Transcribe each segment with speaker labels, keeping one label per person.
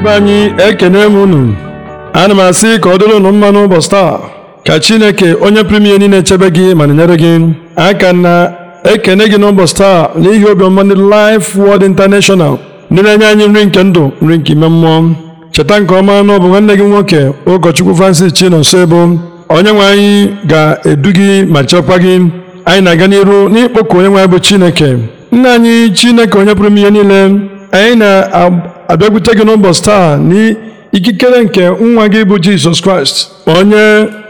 Speaker 1: ndị anyị ekene m unu ana m asị ka ọ dịrị unu mma n'ụbọchị taa ka Chineke onye pụrụ ihe niile chebe gị ma na-enyere gị aka na ekene gị n'ụbọchị taa n'ihi obiọma ndị Life Word International ndị na-enye anyị nri nke ndụ nri nke ime mmụọ cheta nke ọma na ọ bụ nwanne gị nwoke ụkọchukwu Francis Chinonso Ebo onye nwe anyị ga-edu gị ma chekwa gị anyị na-aga n'iru n'ịkpọku onye nwe anyị bụ Chineke nna anyị Chineke onye pụrụ ihe niile anyị na abịakwute gị n'ụbọchị taa n'ikikere nke nwa gị bụ Jizọs Kraịst onye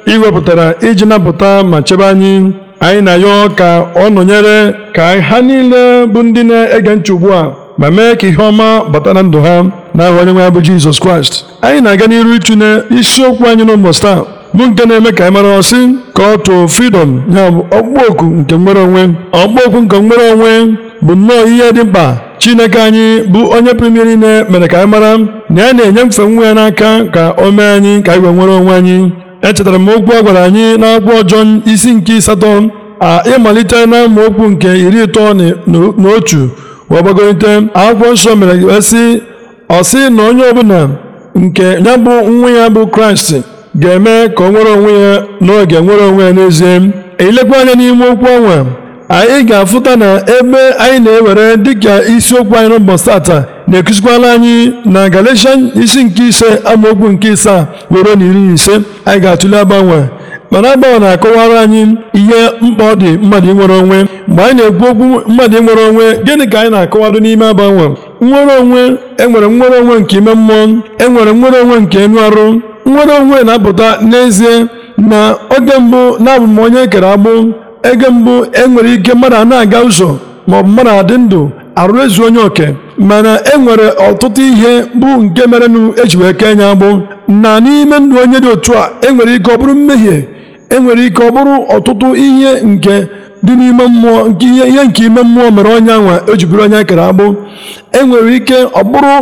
Speaker 1: ị wepụtara iji napụta ma chebe anyị anyị na ya ka ọ nọnyere ka ha niile bụ ndị na-ege ntị ugbu a ma mee ka ihe ọma bata na ndụ ha n'aha onye nwe bụ Jizọs Kraịst anyị na-aga n'iru ịtụnye isiokwu anyị n'ụbọchị taa bụ nke na-eme ka anyị mara ọsị ka ọ tụọ freedom ya bụ ọkpụkpọ oku nke nwere onwe ọkpụkpọ oku nke nwere onwe bụ nnọọ ihe dị mkpa chineke anyị bụ onye pụrụ ime mere ka anyị mara na ya na-enye mfe nwa ya n'aka ka o mee anyị ka anyị wee nwere onwe anyị echetara m okwu a gwara anyị n'akwụkwọ ọjọọ isi nke ịsatọ a ịmalite na okwu nke iri ịtọ na otu wee gbagorite akwụkwọ nsọ mere esi ọsị na onye ọbụla nke ya bụ nwa ya bụ kraịst ga-eme ka o nwere onwe ya n'oge nwere onwe ya n'ezie ilekwa anya n'ime okwu ọnwa anyị ga-afụta na ebe anyị na-ewere dịka isiokwu anyị n'ụbọchị ata na-ekuzikwala anyị na Galatian isi nke ise amaokwu nke isaa were na iri ise anyị ga-atụle agbanwe mana agbanwe na-akọwara anyị ihe mkpa ọ dị mmadụ inwere onwe mgbe anyị na-ekwu okwu mmadụ inwere onwe gịnị ka anyị na-akọwado n'ime agbanwe nwere onwe enwere nwere onwe nke ime mmụọ enwere nwere onwe nke enu arụ nnwere onwe na-apụta n'ezie na oge mbụ na-abụ e kere agbụ ego mbụ enwere ike mmadụ na-aga ụzọ maọbụ mmadụ adị ndụ arụ ezu onye oke mana enwere ọtụtụ ihe bụ nke merenụ eji wee kee nya agbụ na n'ime ndụ onye dị otu a enwere ike ọ bụrụ mmehie enwere ike ọ bụrụ ọtụtụ ihe nke dị n'ime mmụọ nke ihe nke ime mmụọ mere onye nwa eji onye kere agbụ enwere ike ọ bụrụ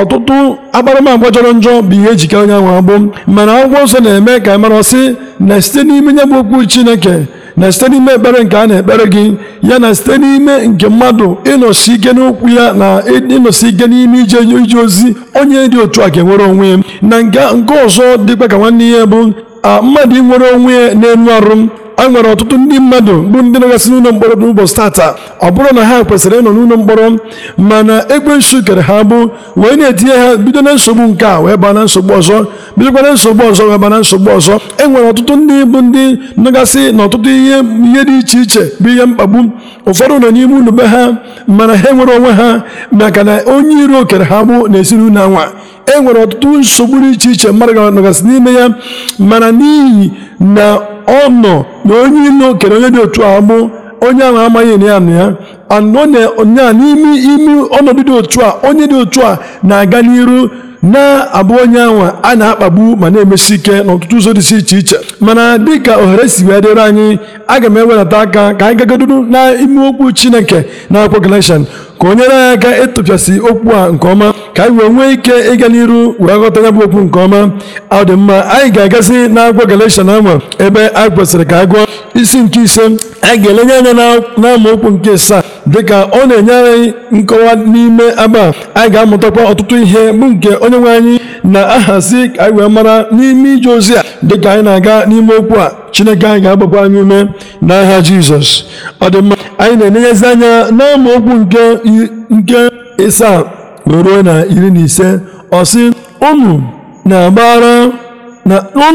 Speaker 1: ọtụtụ akparamagwa jọrọ njọ bụ ihe ejikere onye nwa agbụ mana akwụkwọ nsọ na-eme ka mara sị na site n'ime nye bụ okwu Chineke na site n'ime ekpere nke a na-ekpere gị ya na site n'ime nke mmadụ ịnọsi ike n'okwu ya na ịnọsi ike n'ime ije ije ozi onye dị otu a ga-enwere onwe ya na nke ọzọ dịkwa ka nwanne ya bụ mmadụ nwere onwe ya n'elu arụ a nwere ọtụtụ ndị mmadụ bụ ndị nọgasị n'ụlọ mkpọrọ n'ụbọchị tata ọ bụrụ na ha kwesịrị ịnọ n'ụlọ mkpọrọ mana ekwensu kere ha bụ wee na-etinye ha bido na nsogbu nke a wee baa na nsogbu ọzọ bịakwana nsogbu ọzọ nwebana nsogbu ọzọ e nwere ọtụtụ ndị bụ ndị nọgasị na ọtụtụ ihe ihe dị iche iche bụ ihe mkpagbu ụfọdụ nọ n'ime unu be ha mana ha enwere onwe ha maka na onye iro okere ha bụ na ezinụlọ anwa e nwere ọtụtụ nsogbu dị iche iche mmadụ ga n'ime ya mana n'ihi na ọ nọ na onye iro okere onye dị otu ahụ bụ onye ahụ amaghị na ya na ya anọ n'ime ime ọnọdụ dị otu a onye dị otu a na-aga n'iru na-abụ onye anwa a na-akpagbu ma na-emesi ike n'ọtụtụ ụzọ dị iche iche mana dịka ohere si wee dịrị anyị aga m ewelata aka ka anyị gagaduru n'ime okwu Chineke na akwọ Galatian ka o nyere anyị aka ịtụpịasị okwu a nke ọma ka anyị wee nwee ike ịga n'iru were ghọta ya bụ okwu nke ọma ọ dị mma anyị ga-agazi na agwọ na ebe anyị kwesịrị ka a isi nke ise anyị ga-elenye anya okwu nke asaa dịka ọ na-enye anyị nkọwa n'ime aba anyị ga-amụtakwa ọtụtụ ihe bụ nke onye nwe anyị na-ahazi ka anyị wee mara n'ime ije ozi a dịka anyị na-aga n'ime okwu a chineke anyị ga-agbakwa anyị ume n'aha jizọs ọ dị mma anyị na-enenyezi anya okwu nke ịsaa ruo na iri na ise ọsị sị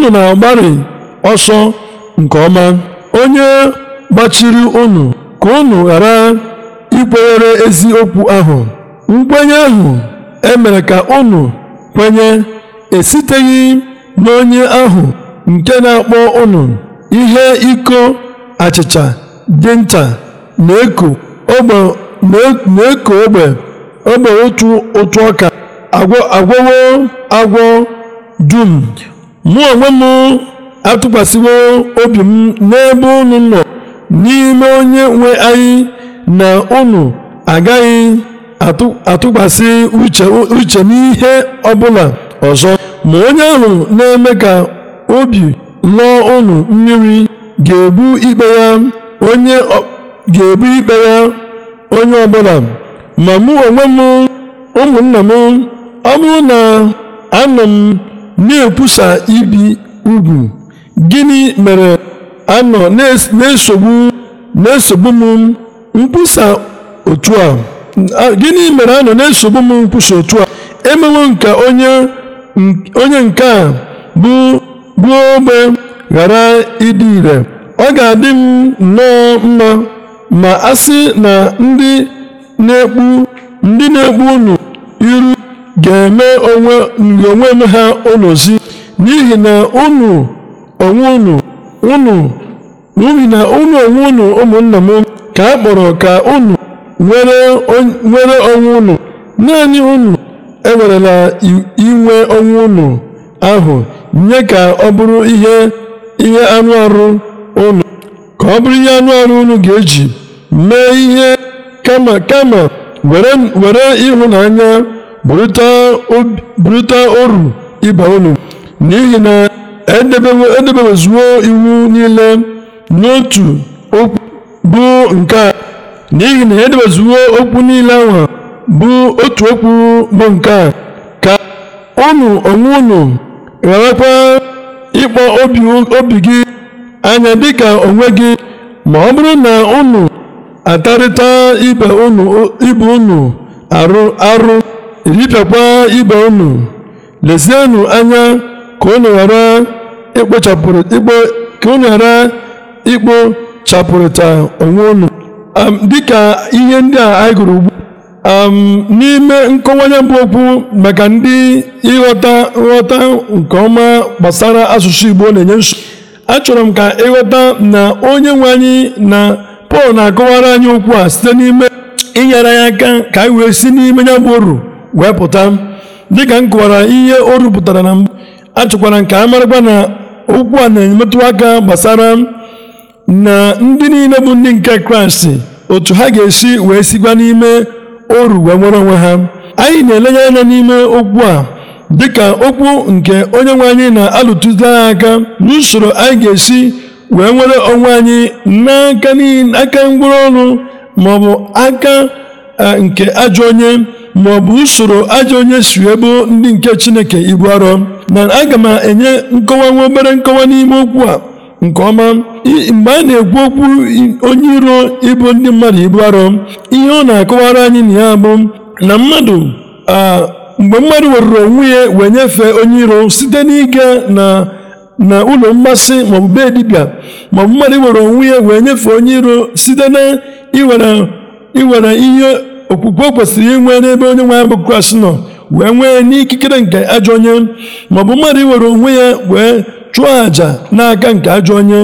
Speaker 1: na agbari ọsọ nke ọma onye gbachiri unu ka unu ghara ikwenyere eziokwu ahụ nkwenye ahụ emere ka unu kwenye esiteghị n'onye ahụ nke na-akpọ unu ihe iko achịcha dị ncha na-eko ogbe ogbe otu ụtụ ọka agwọwo agwọ dum mụ onwe m atụkwasịwo obi m n'ebe unu nọ n'ime onye nwe anyị na unu agaghị atụkwasị uche n'ihe ọbụla ọzọ ma onye ahụ na-eme ka obi lụọ unu mmiri ga-ebu ikpe ya onye ọbụla ma mụ onwe m ụmụnna m ọ bụrụ na anọ m na-ekwusa ibi ugwu gịnị mere anọ na-esogbu na m nkwusa otu a gịnị mere na-esogbu m nkwusa otu a emewo onye nke a bụ gbuo ogbe ghara ịdị ire ọ ga-adị m nnọọ mma ma a sị na ndị ndị na-ekpu ụnụ iru ga-eme onwe ha onozi n'ihi na unu onwe unu n'ihi na unu onwe unu ụmụnna m ka a kpọrọ ka ụnụ nwere onwe unu naanị ụnụ ewerela inwe onwe ụnụ ahụ nye ka ọ bụrụ ihe ihe anụ arụ unu ka ọ ga-eji mee ihe kama kama were ịhụnanya bụrịta oru ibe unu n'ihi na edebewezuo iwu niile n'otu okwu bụ nke a n'ihi na edebezuo okwu niile ahụ bụ otu okwu bụ nke a ka unu onwe unu gharakwa ịkpọ obi gị anya dịka onwe gị ma ọ bụrụ na unu atarịta ibe unu arụ arụ ripịakwa ibe unu lezienụ anya ka unu ghara chapụrịta onwe unu dịka ihe ndị a anyị gụrụ ugbu n'ime nkọwanye bụ okwu maka ndị ịghọta nghọta nke ọma gbasara asụsụ Igbo na-enye nsogbu achọrọ m ka ịghọta na onye nwe anyị na pọl na-akọwara anyị okwu a site n'ime inyere anyị aka ka anyị wee si n'ime ya bụ oru wee pụta dịka m kọwara ihe o rupụtara na mbụ achọkwara nke a marakwa na okwu a na-emetụ aka gbasara na ndị niile bụ ndị nke kraịst otu ha ga-esi wee sikwa n'ime oru wee nwere onwe ha anyị na-elenye anya n'ime okwu a dịka okwu nke onye nwe anyị na-alụtụzi aka n'usoro anyị ga-esi wee nwere onwe anyị n'aka aka ngwụrụ ọrụ maọbụ aka e, nke ajọ onye maọbụ usoro ajọ onye si ebo ndị nke chineke ibu arọ na aga m enye nkọwa nwa obere nkọwa n'ime okwu a nke ọma mgbe a na-ekwu okwu onye iro ibu ndị mmadụ ibu arọ ihe ọ na-akọwara anyị na ya bụ na mmadụ mgbe mmadụ werụrụ onwe ya wee nyefee onye iro site n'ịga na na ụlọ mmasị maọbụ be dibịa maọbụ mmadụ iwere onwe ya wee nyefee onye iro site na iwere ihe okwukwe kwesịrị inwe n'ebe onye nwe ya bụ Kraịst nọ wee nwee n'ikikere nke ajọ onye maọbụ mmadụ iwere onwe ya wee chụọ àjà n'aka nke ajọ onye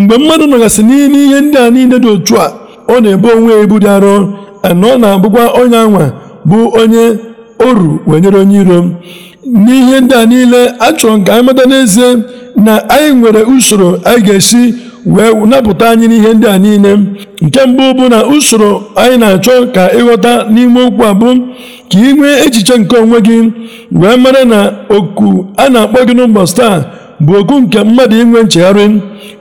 Speaker 1: mgbe mmadụ nọgasị n'ile ihe ndị a niile dị otu a ọ na-ebu onwe ya ibu dị arọ na ọ na-abụkwa onye anwa bụ onye oru wee nyere onye iro n'ihe ndị a niile achọrọ m ka anyị mata n'ezie na anyị nwere usoro anyị ga-esi wee napụta anyị n'ihe ndị a niile nke mbụ bụ na usoro anyị na-achọ ka ịghọta n'ime okwu a bụ ka ị nwee echiche nke onwe gị wee mara na oku a na-akpọ gị n'ụbọchị taa bụ oku nke mmadụ inwe nchegharị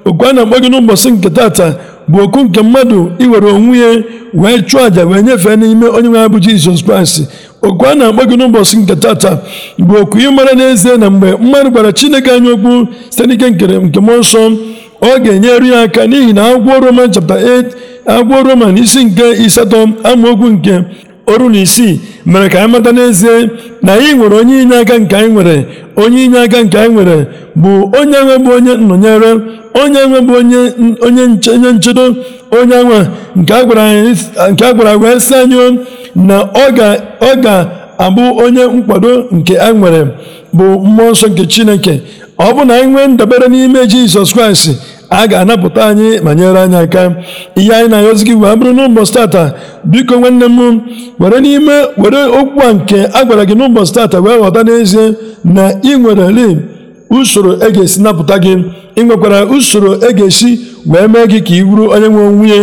Speaker 1: oku a na-akpọ gị n'ụbọchị nke tata bụ oku nke mmadụ iwere onwe ya wee chụọ àjà wee nyefee n'ime onye nwe ya bụ Jizọs Kraịst okwu a na-agba gị n'ụbọchị nke tata bụ okwu ị mara n'ezie na mgbe mmadụ gwara chineke anya okwu site n'ike nke mmụọ nsọ ọ ga-enyere ya aka n'ihi na agwọ roman chapta 8 agwọ roman isi nke ịsatọ amaokwu nke oru na isii mere ka anyị mata n'ezie na anyị nwere onye inye aka nke anyị nwere onye inye aka nke anyị nwere bụ onye nwe bụ onye nnọnyere onye nwe bụ onye onye nchedo onye nwe nke a gwara agwa si anyị na ọ ga-abụ onye nkwado nke a nwere bụ mmụọ nsọ nke chineke ọ bụ na anyị nwee ndabere n'ime jizọs kraịst a ga-anapụta anyị ma nyere anyị aka ihe anyị na-ayọzi gị wee bụrụ n'ụbọchị tata biko nwanne m were n'ime were okwu a nke a gwara gị n'ụbọchị tata wee ghọta n'ezie na ị nwere usoro e ga-esi napụta gị ị nwekwara usoro e ga-esi wee mee gị ka i buru onye nwe nwunye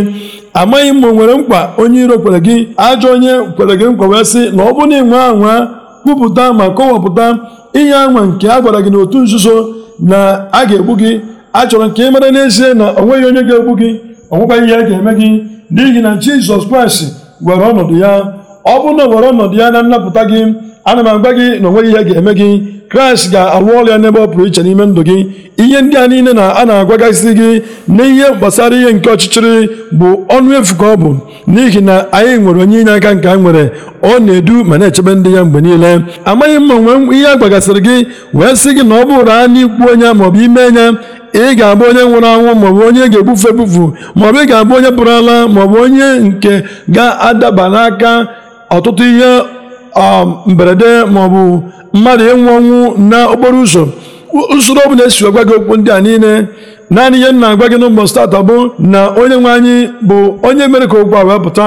Speaker 1: amaghị m o nwere mkpa onye iro kwere gị ajọ onye kwere gị nkwa wee sị na ọ bụrụ na ị nwe anwa kwupụta ma kọwapụta inye anwa nke a gwara gị n'otu nzuzo na a ga-egbu gị a chọrọ nke mara n'ezie na o onye ga-egbu gị onwekwa ihe ga-eme gị n'ihi na jizọs kraịst were ọnọdụ ya ọ bụrụ na were ọnọdụ ya na nnapụta gị ana m agba gị na onweghị ihe ga-eme gị kraịst ga-arụ ọrụ ya n'ebe ọ pụrụ iche n'ime ndụ gị ihe ndị a niile na a na-agwagasị gị n'ihe gbasara ihe nke ọchịchịrị bụ ọnụ efu ka ọ bụ n'ihi na anyị nwere onye inye aka nke anyị nwere ọ na-edu ma na-echebe ndị ya mgbe niile amaghị mma nwe ihe a gị wee sị gị na ọ bụrụ a n'ikwu onye maọbụ ime enya ị ga-abụ onye nwụrụ anwụ maọbụ onye ga-egbufe ebufu maọbụ ị ga-abụ onye pụrụ ala maọbụ onye nke ga-adaba n'aka ọtụtụ ihe Um, mberede maọbụ mmadụ ịnwụ ọnwụ n'okporo ụzọ usoro ọbụla esi agwa gị okwu ndị a niile naanị ihe m na-agwa gị n'ụbọchị tata bụ na onye nwe anyị bụ onye mere ka okwu a wee pụta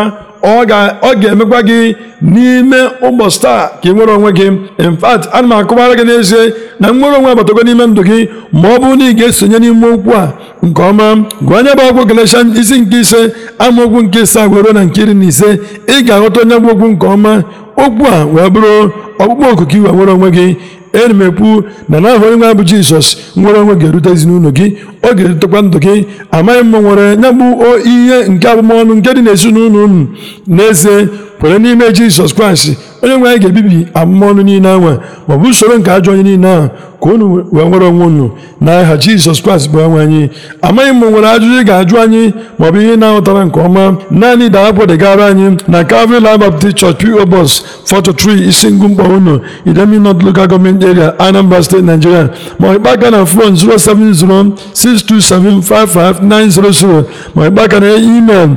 Speaker 1: ọ ga-emekwa gị n'ime ụbọchị taa ka ị nwere onwe gị in fact ana m akọwara gị n'ezie na nnwere onwe abatago n'ime ndụ gị ma ọ bụrụ na ị ga-esonye n'ime okwu a nke ọma gụọ anya bụ ọgwụ Galatian isi nke ise amaokwu nke ise were na nke iri na ise ị ga-aghọta onye bụ okwu nke ọma okwu a wee bụrụ ọkpụkpọ oku iwe ị nwere onwe gị enyi m ekwu na ahụ onye nwe bụ jizọs nwere onwe ga-erute ezinụlọ gị ọ ga-erutekwa ndụ gị amaghị m nwere nya bụ ihe nke abụmọnụ nke dị n'ezinụlọ unu n'ezie kwere n'ime jizọs kraịst onye nwe anyị ga-ebibi abụmọnụ niile anwa maọbụ usoro nke ajọ onye niile ahụ ka unu wee nwere onwe unu n'aha jizọs kraịst bụ onwe anyị amaghị m nwere ajụjụ ị ga-ajụ anyị maọbụ ihe na ahụtara nke ọma naanị daa kpọdegara anyị na Calvary Life Baptist Church P.O. bus 43 isi ngụ mkpọ unu Idemili North Local Government Area Anambra State Nigeria ma ịkpa aka na fon 07062755900 ma ịkpa aka na email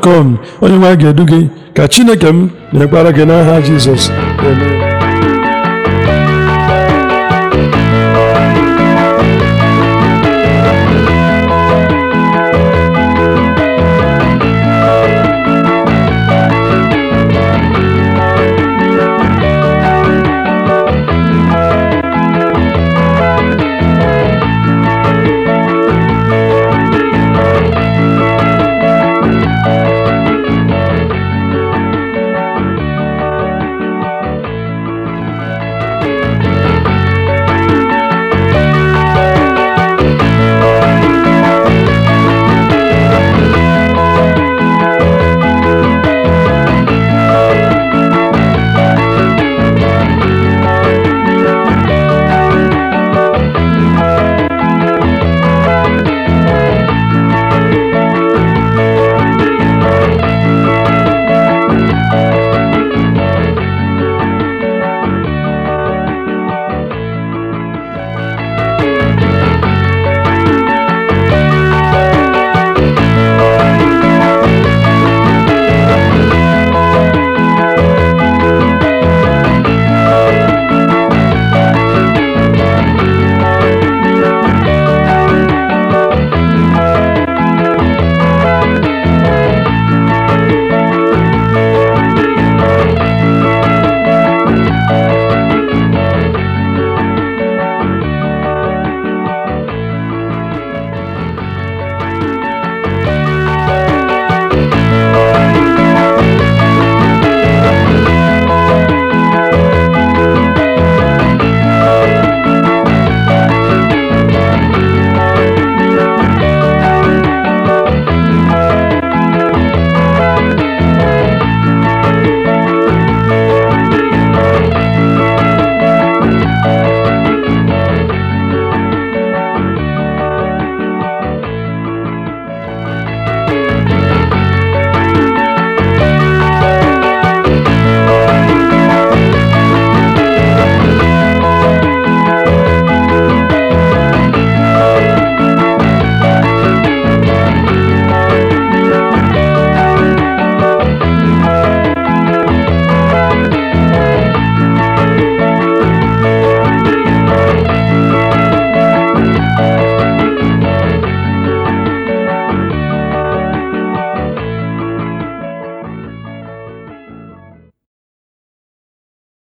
Speaker 1: com onye nwe ga-edu gị ka chineke m na-ekpara gị n'aha jizọs